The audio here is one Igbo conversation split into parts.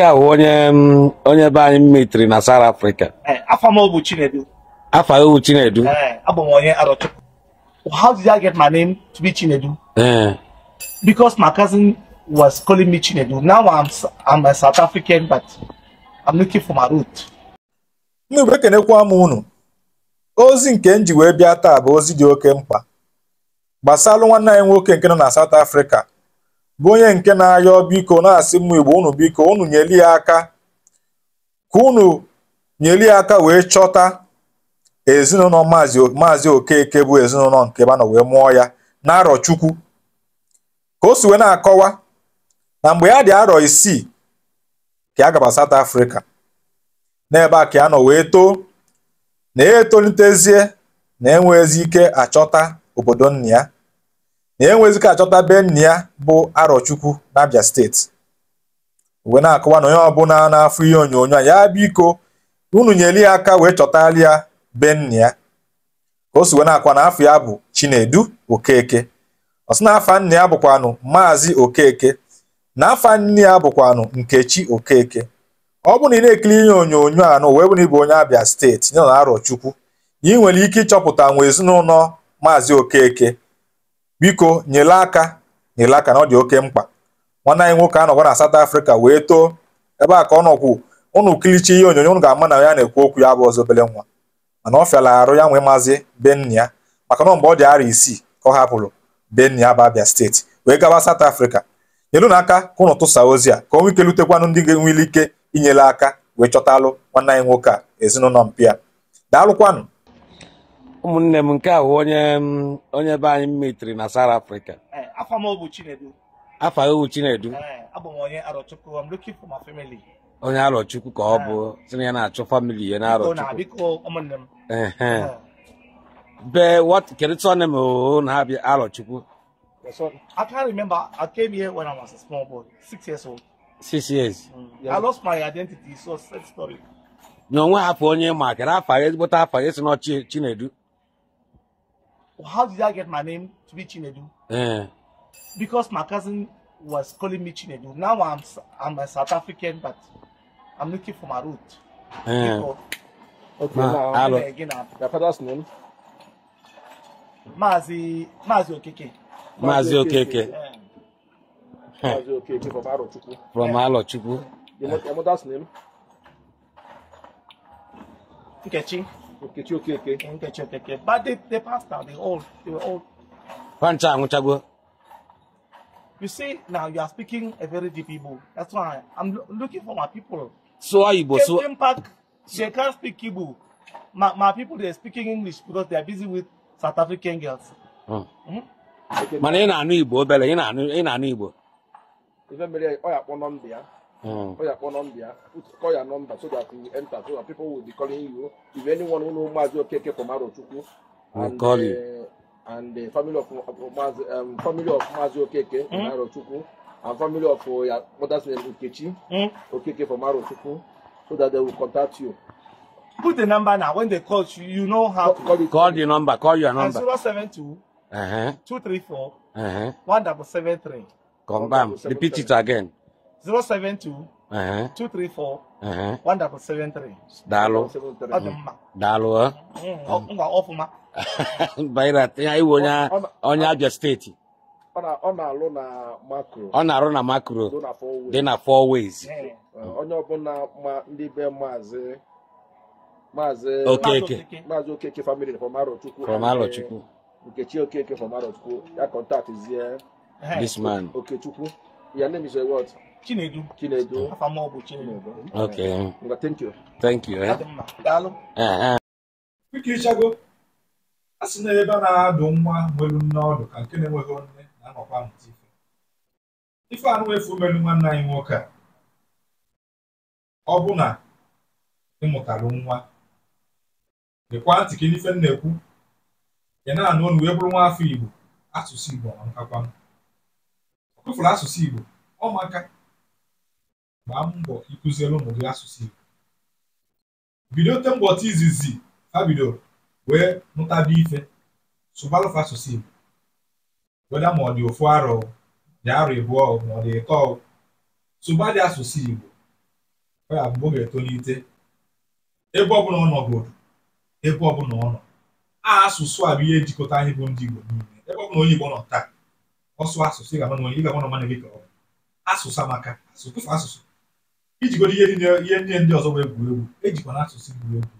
nke a bụ onye onye be anyị mitri na South Africa eh, afa m Chinedu afa eh, Arochukwu how did I get my name to be Chinedu eh. because my cousin was calling me Chinedu now I'm, I'm a South African but I'm looking for my root ndị igwe kenekwa m unu ozi nke m ji wee bịa taa bụ ozi dị oke mkpa gbasara nwanne anyị nwoke nke nọ na South Africa bụ onye nke na-ayọ biko na-asị m igbo unu biko unu nyeli ya aka ka unu nyeli ya aka wee chọta ezinụlọ maazị okeke bụ ezinụlọ nke banọ wee mụọ ya na arọ chukwu ka o si wee na-akọwa na mgbe ya dị arọ isii ka ya gaba South Africa n'ebe a ka ya nọ wee too na ya etolitezie na enwezi ike achọta obodo nna ya na enwezika achọta be ya bụ arọchukwu n'Abia steeti wee na-akọwa na onye ọbụla na-afụ ihe onyonyo a ya biko unu nyeli ya aka wee chọtara ya be ya ka o si wee na-akwa na afọ ya bụ Chinedu Okeke ọ sị ya bụkwanụ Maazị Okeke na afa nne ya bụkwanụ Nkechi Okeke ọ bụ na ị na-ekiri ihe onyonyo a n'ụwa bụ na ịbụ onye abịa steeti ya na Arochukwu ị nwere ike ịchọpụta nwa ezinụlọ Maazị Okeke biko nyele aka nyele aka na ọ dị oke mkpa nwanne anyị nwoke anọkwa na South Africa wee too ebe a ka ọ nọkwu ụnụ kilichi ihe onyonyo ụnụ ga-ama na ya na-ekwu okwu ya bụ ọzọ obele nwa mana ọ fịala arụ ya nwee maazị be ya maka na mgbe ọ dị arọ isii ka ọ hapụrụ be ya bụ Abia steeti wee gaba South Africa nyelu na aka ka ụnụ tụsa ozi a ka onwe ike lutekwanụ ndị ga ike inyere aka wee chọtalụ nwanne anyị nwoke a ezinụlọ mpịa daalụkwanụ ụmụnne m nke a onye onye be anyị na South Africa eh, afa m Chinedu Chinedu eh, onye arọchukwu ka ọ bụ eh. sina ya na-achọ famili ya na-arọchukwu be na ha bịa arọchukwu I can't remember. I came here when I was a small boy, six years old. Six years. Mm. Yeah. I lost my identity, so sad story. onye ma kere Chinedu how did I get my name to be Chinedu? Uh. Because my cousin was calling me Chinedu. Now I'm I'm a South African, but I'm looking for my root. Uh. Eh. okay, Ma, now hello. again. Your father's name? Mazi Mazi Okeke. Mazi Okeke. Eh. Mazi Okeke from Alochukwu. From Alochukwu. Your mother's name? Nkechi. Okay, okay, okay. Okay, okay, okay. But they, they passed out. They all they were all. You see, now you are speaking a very deep Igbo. That's why I'm looking for my people. So are you, So came they can't speak Igbo. My, my people they're speaking English because they are busy with South African girls. Mm. Mm -hmm. Mana ị ị na-anụ Igbo. Ife mere oh yeah, kpọ nọmba Call your phone number, call your number so that you enter, so that people will be calling you. If anyone who knows Mazi Okeke from Arochukwu, and, call uh, And the family of, um, family of Mazi Okeke mm. from Arochukwu, and family of uh, your mother's name Ukechi, mm. Okeke from Arochukwu, so that they will contact you. Put the number now. When they call you, you know how call, to call, it. call the number. Call your number. And 072 uh -huh. 234 uh -huh. 1773. Come back. Repeat it again. 072 234 daalụ onye abịa steeti ọ na-alụ na arụ na makro dị na four ways uh, uh, onye ọbụla uh, ndị be maazị maazị okeke maazị okeke family from arochukwu from nkechi eh. okeke from arochukwu ya this man ya name is Chinedu. Chinedu. ọ bụ Chinedu. Nga thank you. Thank you. Eh? Ah, ah. na ebe a na-adụ nwa nwelu nne ọdụ ka nke na-enweghị nne na-anọkwa ife. Ife anụ melu nwanne anyị nwoke a. Ọ bụ na ị mụtara nwa. dịkwa ntị ka ife na-ekwu. Ị na-anụ ọnụ wee bụrụ nwa afọ Igbo. Asụsụ Igbo ọ nkakwa asụsụ Igbo. Ọ gbaa mbọ ịkụziere ụmụ gị asụsụ Igbo bido ote mbọchị izizi ha bidoro wee mụtaba ife sụgbalụfa asụsụ Igbo weda ma ọ dị ofu arọ dị arọ ịbụọ ma ọ dị ịtọ dị asụsụ Igbo ya bụ oge etolite ebe ọbụla ọ nọgoro ebe ọbụla ọ nọ a asụsụ a bụ ihe ejikọta anyị bụ ndị Igbo niile ebe ọbụla onye Igbo nọ taa ọsụ asụsụ ị ga-ama onye ị ga-ama na mmadụ gị ka ọ asụsụ amaka asụsụ asụsụ ijigodo ihe ihe nye ndị ọzọ e wee gwuru egwu ejikwa na asụsụ gwuru egwu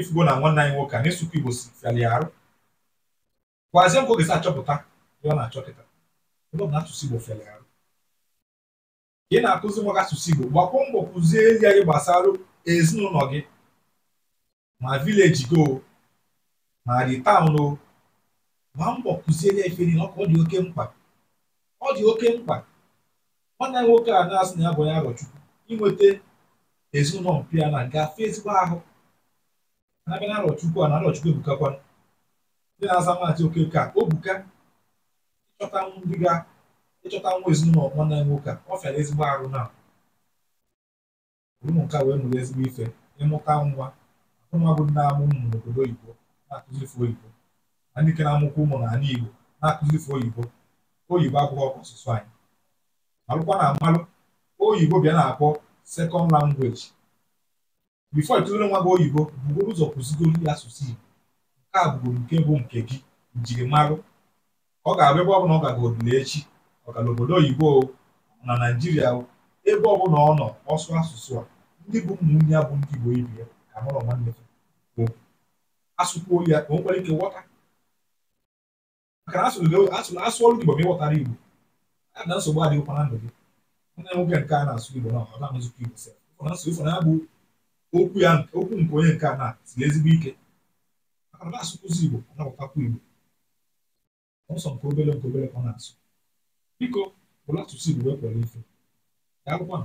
ifugo na nwanne anyị nwoke a na-esukwa igbo si fiali arụ kwazie nkwa ogesi achọpụta ya ọ na-achọ kịta ebe ọ na asụsụ igbo fiali arụ ị na-akụzi nwa gị asụsụ igbo gbakwa mbọ kụzie ezi anyị gbasara ezinụlọ gị ma vileji go ma dị taụn o ma mbọ kụziere ya ife niile ọ dị oke mkpa ọ dị oke mkpa nwanne nwoke a na-asị na ya bụ onye agọchukwu inweta ezinụlọ mpịa na gafe ezigbo ahụ na-abịa na arọchukwu a na arọchukwu ebukakwa ndị na-aza maazị oke ka obuka ịchọta ndị ga ịchọta nwa ezinụlọ nwanne nwoke a ọ fịara ezigbo arụ na ụmụ nka wee mụrụ ezigbo ife ịmụta nwa akụnwa bụ na-amụ ụmụ n'obodo oyibo na-akụzife oyibo na ndị ke na-amụkwa ụmụ n'ala igbo na-akụzife oyibo oyibo abụghị ọkụ ọsụsụ anyị alụkwa na mmalụ oyibo bịa na-akpọ sekọnd langweji bifo ịkụziri nwa gị oyibo bugoro ụzọ kụzigoro ya asụsụ igbo nke a bụgoro nke bụ nke gị njirimarụ ọ ga-abụ ebe ọbụla ọ gaga odile echi ọ obodo oyibo na naijiria ebe ọbụla ọ nọ ọsụ asụsụ a ndị bụ ụmụnne ya bụ ndị igbo ibi ya ka mụrụ nwanne bụ asụkwuo ya ka o nwere ike ghọta maka na asụsụ asụ ọrụ igbo ma ịghọtara igbo na nsogbu adịghịkwa na ndụ gị nne nwoke nke a na-asụ igbo na ọ na-amụzikwa igbo sef nso ifo na-abụ okwu ya okwu nke onye nke a na siri ezigbo ike maka na asụkwụzi igbo anabụtakwa igbo ọsọ nke obere nke obere ọ na-asụ biko bụrụ asụsụ igbo ekwere ife ya agwụkwa